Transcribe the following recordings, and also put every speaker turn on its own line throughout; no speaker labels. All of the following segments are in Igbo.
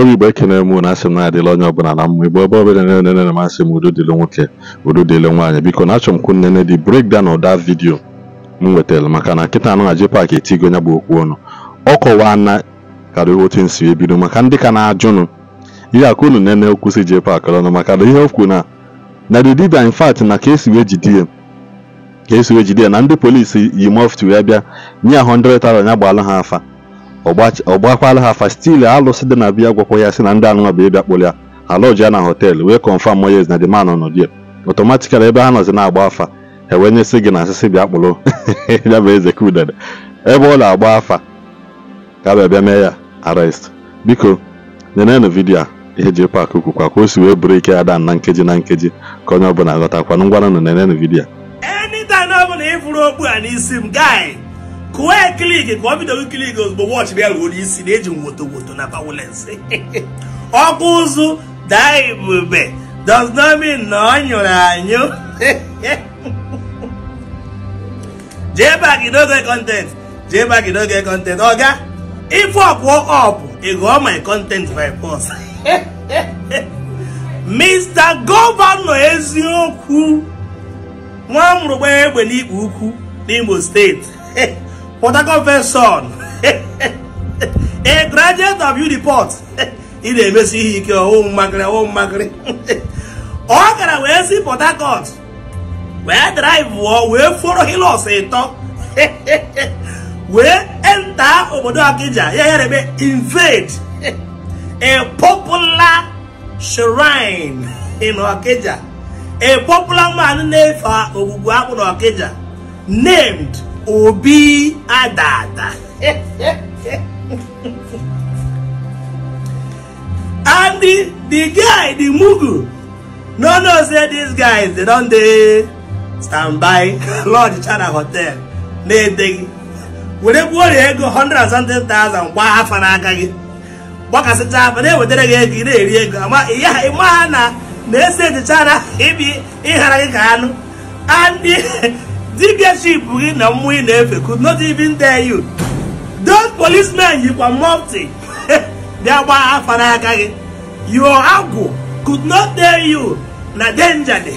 onye igbo ekenere m na asị m na-adịla onye ọbụla na mma igbo ebe ọbụla na-enene m asị m udo dịle nwoke udo dịle nwaanyị biko na achọ m kwu nnene dị breakdown ụda vidio m nwetara maka na nkịta anụ aji paakị etigo ya bụ okwu ọnụ ọ kọwaa na karịrị otu nsi ebido maka ndị ka na-ajụnụ ihe akụ unu nene okwu si jee paakị ọnụ maka na ihe okwu na na the dibia in fact na ka esi wee jide ka esi wee jide na ndị polisi yi mọftu ya bịa nye ahụ 100 tara ya gbalụ ha afa ọgbakwala ha afa stili alụsị dị na biya gwakwa ya si na ndị anụnwa bụ ịbịa kpụrụ ya alọji ya na họteelụ wee kọnfam moyes na dịman nọ die ọtọmatikal ebe ha nọzi na-agba afa ewee nyesị gị na asịsị bịa kpụrụ ya bụ eze kudede ebe ọ na-agba afa ka bịa bịa mee ya arrest biko nyenenụ vidiyo a ihe ji pak kwukwa ka o si wee bụrụ ike ya da na nkeji na nkeji ka onye ọbụla ghọtakwanụ ngwanụ nenenụ vidiyo
anytime a Quickly, ya kliki ka ọ bido kliki ozugbo wọchị ya ruoro isi na-eji woto woto na pawulensi ọkụ ụzụ daa ebube does not mean na ọ nyụrụ anyụ jee you no get content jee you no get content oga if work work up e go my content by force mr gọvanọ eziokwu nwa mrụgba egbe n'ikpe ukwu n'imo steeti Port son a graduate of Uniport ị na-emesi ihe ike ọwụ mmakịrị ọwụ mmakịrị ọ gara wee si Port Harcourt wee drive wụọ wee foro hilos ịtọ wee enta obodo Akija ya ya ebe invade a popular shrine in Akija a popular man na-efe ogbugbu akpụ na Akija named obi adada and the, the guy the mugu no no say these guys they don dey stand by lord china hotel na-edeghị were gbuo ọrịa ego 170,000 gbaa afa n'aka gị gbakasịcha afa na-ewetara gị ego ị na-eri ego ịma ha na na-ese ejicha na ịbi ịghara gị ka anụ dibia ship gị na mmụọ ị na-efe could not even tell you those policemen you were mufti bịa gbaa afa n'aka gị your agwụ could not tell you na danger dị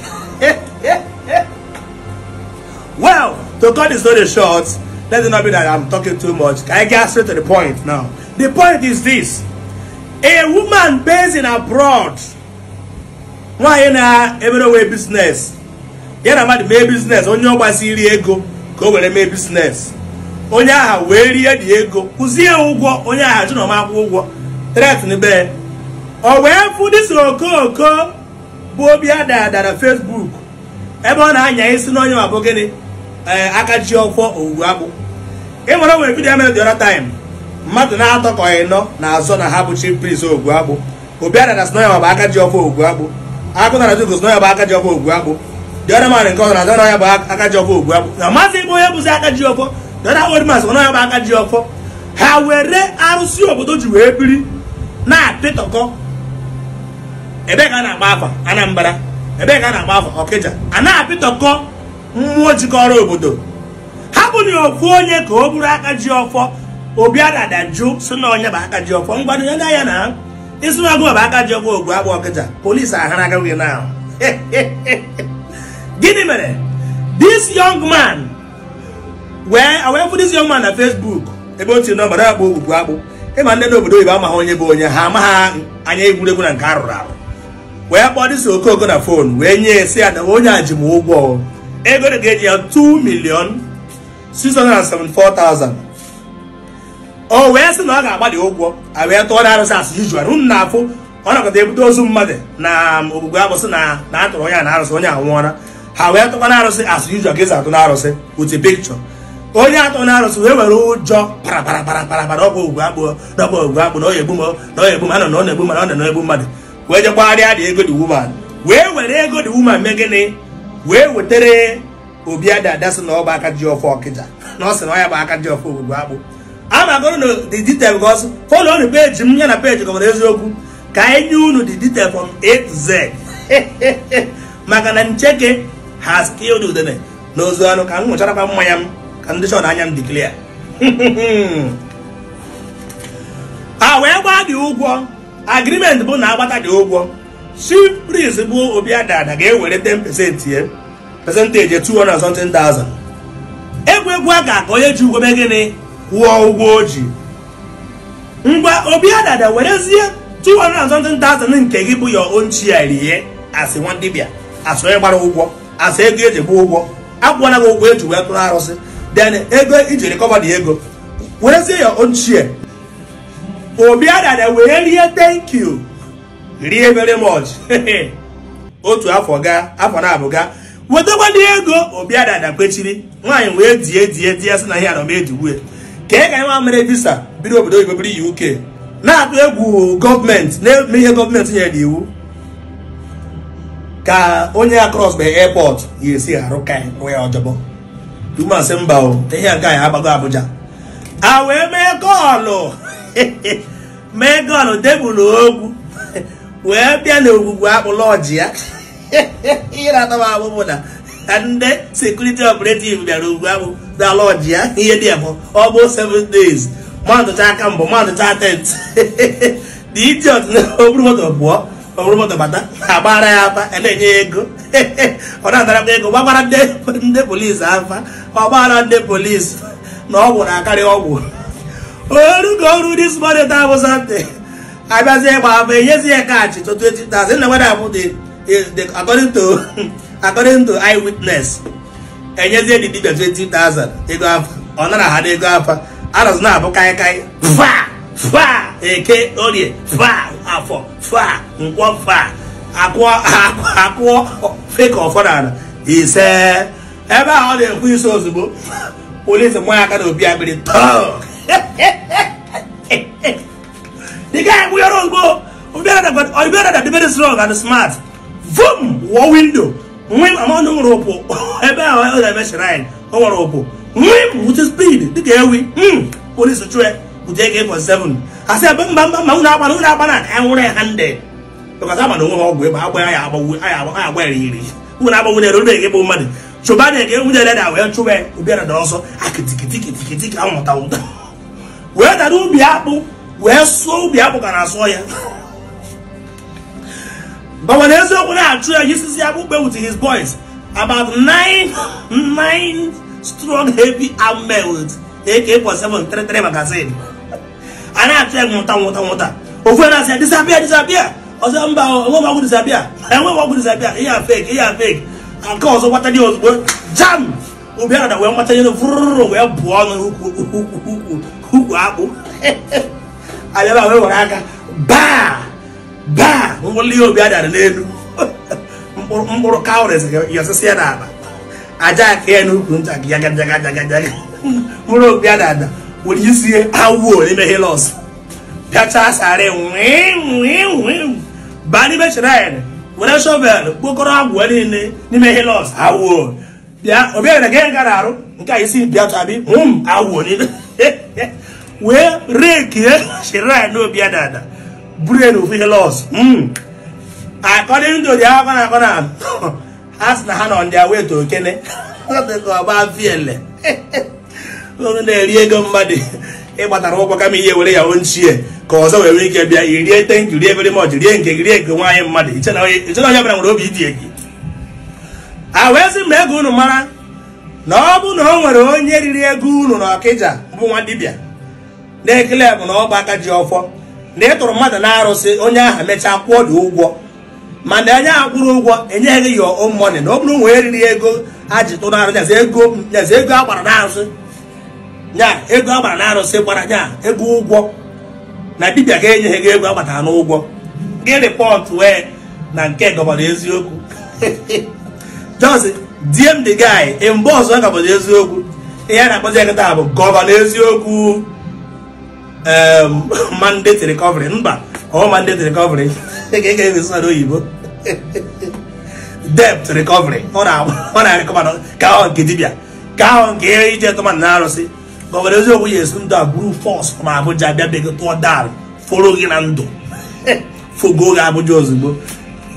well to cut the story short let it not be that i'm talking too much i get straight to the point now the point is this a woman based in abroad nwanyị na-emerewe business ya na mmadụ mee biznes onye ọgbasi iri ego ka o were mee biznes onye aha wee rie dị ego kwụzie ya ụgwọ onye aha jụ na ụgwọ tretnbe o wee fụ dịsị okooko bụ obi adada na Facebook ebe ọ na-anya isi n'onye ma bụ gịnị ee eh, aka ọkwọ owuwe akpụ ịmara nwere vidiyo mere dị taim mmadụ na-atọ ka ịnọ na azọ na ha bụ chi prince ogwu akpụ obi adada sị na ya bụ aka ji ọkwọ ogwu akpụ akụ na dị sị na ya bụ aka ji ọkwọ ogwu akpụ the other man nke na dọrọ bụ akaji ji ọfọ na maazị ebe onye bụzi aka ji ọfọ the other old man bụ aka ji ha were arụsị obodo ji wee biri na-apịtọkọ ebe ka a na-agba afa anambra ebe ka a na-agba afa a apịtọkọ mmụọ jikọrọ obodo ha ofu onye ka ọ bụrụ aka ji ọfọ obi adada na onye bụ aka ji ya na na bụ aka ji ogbu gịnị mere this young man wee awefụ this young man na facebook ebe o tiri nọmba na-akpọ akpụ ịma ndị n'obodo oyibo amaghị onye bụ onye ha amaghị anya egwuregwu na nke arụrụ arụ wee kpọọ dịsị okooko na fon wee nye sị ya na onye a ji m ụgwọ ego dị ga-eji ya 2 million 674,000 o wee sị na ọ ga agbalị ụgwọ a wee tụọ na arụsị asị izu arụ na afụ ọ nakọta ebute ozu mmadụ na ogbugbu agbụsị na na atụrụ onye a na arụsị onye anwụọla ha wee tụkwa na arụsị as usual ka esi atụ na arụsị with a onye atụ na wee were ụjọ paraparaparapara ọgwụ ogwe agbụ dọba ogwe agbụ na ọ egbu m na ọ egbu m anọ na ọ na-egbu mmadụ na ọ egbu mmadụ wee jekwagharịa dị ego dị woman wee were ego dị wuman mee gịnị wee wetere Obiada Ada sị na ọ bụ aka ji ọfọ ọkịja na ọ sị na ọ ya bụ aka ji ọfọ ogwugwe agbụ a magoro na the detail gos fọlọ unu peji m ya na peji gọmara eziokwu ka anyị nye unu the detail from A Z maka na ncheke ha skilled udene n'ozu anụ ka m ṅụcharakwa mmanya m ka ndị chọrọ anya m diklia a wee gbaa dị ụgwọ agrimenti bụ na agbata gị ụgwọ chief bụ obi ga-ewere 10% ya percentage 200 something thousand egwu a ga-akọ onye ji ụgwọ gịnị kwụọ ụgwọ o ji ngwa obi adada werezie 200 nke gị bụ ya own ya rie asị nwa dibịa asị onye gbara ụgwọ asa ego eji gbaa ụgwọ akwụna gị ụgwọ eji wee tụrụ arụsị den ego iji rikọba dị ego werezie ya ochie obi adada wee rie thank rie very much otu afọ gaa afọ na-abụga wetakwana ego obi adada kwechiri nwaanyị wee die die die sị na ihe anọ m ka ị e ga nwa mere visa biri obodo oyibo biri UK na-atụ egwu gọọmenti na-eme ihe gọọmenti nyere n'iwu ka onye ya cross by airport ya esi arụ ka ya e ọjọbọ ihe a ya agbago Abuja a wee mee gọọlụ mee gọọlụ ogwu wee bịa n'ogwugwu ogwugwu ya ihe abụbụ na ndị sekuriti operative bịara ogwu akpụ ya ihe dị ọ bụ days mmadụ mbụ mmadụ tent dị idiot oromọdụ bata agbara ya afa a e na-enye ya ego ọ na m ego gbagbara ndị polisi afa ọgbara ndị polisi na ọgwụ na-akarị ọgwụ orugo ọrụ dis bụ sante enyezi ya na na nwere abụ dibia ego afa ọ nara ha na-abụ kaịkaị fa eke orie fa afọ fa nkwọ fa akụọ feka ọfọdụ ise ebe ahụ ọ na-ekwu isi ozugbo polisi mmanya aka na obi agbịrị tọọ the guy we are all go or better that the very strong and smart boom war window nwim among them rope ebe ahụ ọ na-eme shrine ọ nwere opo nwim with speed dị ka ewi hmm, police chue 7 asị ebe mba mba mba unu agbana unu agbana anwụrụ ya ha nde tụkọta agbana onwe ha ọgwụ ịba agba ya agbanwu aya agba ya iri unu agbanwu na eruru ege bụ mmadụ chụba na ege nwunye leda wee chụba ya ụbịara da ọsọ akitikitikitikiti ka mụta ụta wee dara ubi akpụ wee sụọ ubi akpụ ka na-asụọ ya bawa na eziokwu na-achụ ya yisizi akpụkpe with his boys about nine nine strong heavy armed men with AK-47 33 magazine a na-achọ mụta mụta nwụta nwụta ofu na-asị ya disapịa ọzọ mba enweghị ọgwụ disapịa a fake fake nke ọzọ gbata gị ozugbo jam ụbịa na wee mata ihe vụrụrụ wee bụọ ọnụ ukwu akpụ wee aka baa baa ngwụli ihe obi adara n'elu mkpụrụ kawụres ya aja ya were izie awuo n'ime hilos bịachaa sarị baa n'ime chirain were shovel kpokoro agwụ niile n'ime hilos awuo bịa obiara gị gara arụ nke a isi bịachabi m awuo n'ime wee rekie chirain obiadada buru elu ofu hilos akọdịndị ụdị akọ na akọ na ha sị na ha nọ ndị aweto okene ọgba viele ụlọrụ na-eri ego mmadụ ịgbatara ụkwụ kama ihe were ya ochie ka ọzọ were ike bịa irie tenki rie very much rie nke rie nke nwaanyị mmadụ ichena onye bịara nwere obi idi egi a wee sị ego unu mara na ọ bụ na o nwere onye riri ego unu na ọkịja bụ nwa dibịa na-ekele bụ na ọgba aka ji ọfọ na ị tụrụ mmadụ na-arụsị onye aha mechaa kwụọ dị ụgwọ mana onye aha kwụrụ ụgwọ enyeghị ya ọmọnị na ọ bụrụ nwee riri ego ha ji tụnarụ arụ ego a gbara na arụsị nya ego agbara na arụsị gbara nya ego ụgwọ na dibia ga enyeghị gị ego agbatara n'ụgwọ gị rịpọtụ wee na nke gọbara eziokwu just dm the guy mgbe ọzọ gọbara eziokwu ihe a na-akpọzi ekịta bụ gọvanọ eziokwu mandate recovery mba ọ mandate recovery ga sọrọ oyibo debt recovery ọ na-arịkọba ka ahụ nke dibia ka ahụ nke ije tụmadụ na arụsị gọvanọ eziokwu ya esi ndụ a buru fọs ma abụja bịa bịa tụọ dal foro gị na ndụ fogo gị abụja ozugbo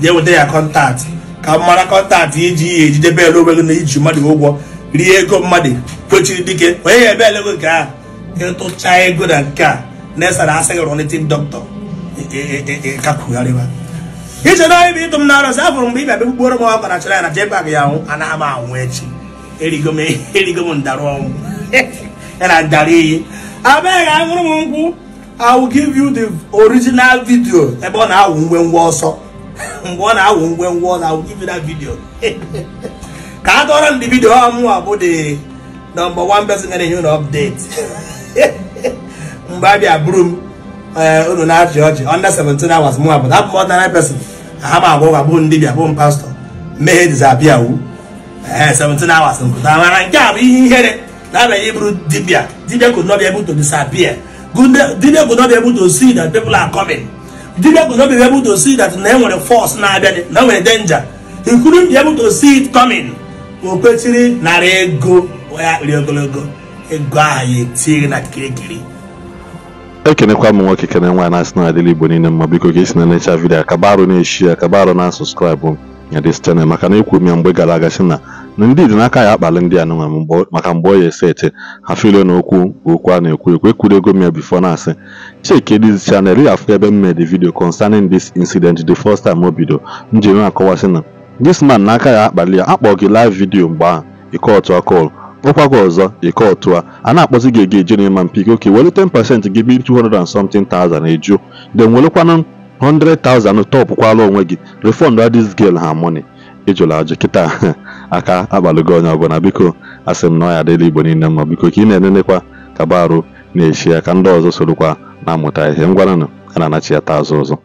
jee weta ya kọntaktị ka mara kọntaktị iji ya ejidebe ele onwe gị na iji mmadụ ụgwọ rie ego mmadụ kwechiri dike onye ya ebe elego nke a ịtụcha ego na nke a na-esara asị gị rọnitin dọkịta kakwugharịba iche na onye bụ ịtụ m na arụsị afụrụ mgbe ị bịa mkpụrụ m ọkọ na chara ya na jebag ya anwụ anaghị m anwụ echi erigo m ndarụ ọnwụ and adari abeg aṅụrụ m nkwụ i will give you the original video ebe ọ na-awụ ngwengwe ọsọ mgbe ọ na-awụ ngwengwe ọ give you that video ka a dọrọ ndị vidio ọ a bụ the number one person ga na update mgbe eh, abịa m unu na-achị ọchị under hours abụ m person ndị m pastọ mmehie 17 hours nke a bụ ihe ihere That may able Dibia. Dibia could not be able to disappear. Dibia could not be able to see that people are coming. Dibia could not be able to see that now e when force, now when a danger. He couldn't be able to see it coming. Okpechiri narị ego ya ogologo ego ahụ ya etinye na kirikiri.
E ekenekwa m nwoke kene nwaanyị na-asị na adịla igbo niile mma biko ka esi na necha vidiyo akabarụ na-eshi akabarụ na sọskraịbụ na dis chanel maka na ekwu m ya mgbe gara aga si na na ndị dị n'aka ya akpali ndị anụnwa maka mgbe ọ ya eseti ha na okwu okwu a na-ekwu ekwu ekwudego m ya bifo na-asị check this chanel ya afụ ebe m made video concerning this incident the first time o bido njem akọwasị na this man n'aka ya akpali ya akpọ gị live video mgbe ahụ ike otu akọl kpọkwa gị ọzọ ịkọ ọtụ a a na-akpọzi gị ege jere ma mpik oke welu 10% gị bi 200 and something thousand eju then welekwanụ 100,000 tọpụkwala onwe gị refund this girl her money ịjụla ajụ kịta aka akpalụgo onye ọbụla biko asị m na ọ ya dị igbo niile mma biko ka ị na-enenekwa ka arụ na-echi ya ka ndị ọzọ sorokwa na-amụta ihe ngwananụ a na-anachi ya taa azụ ọzọ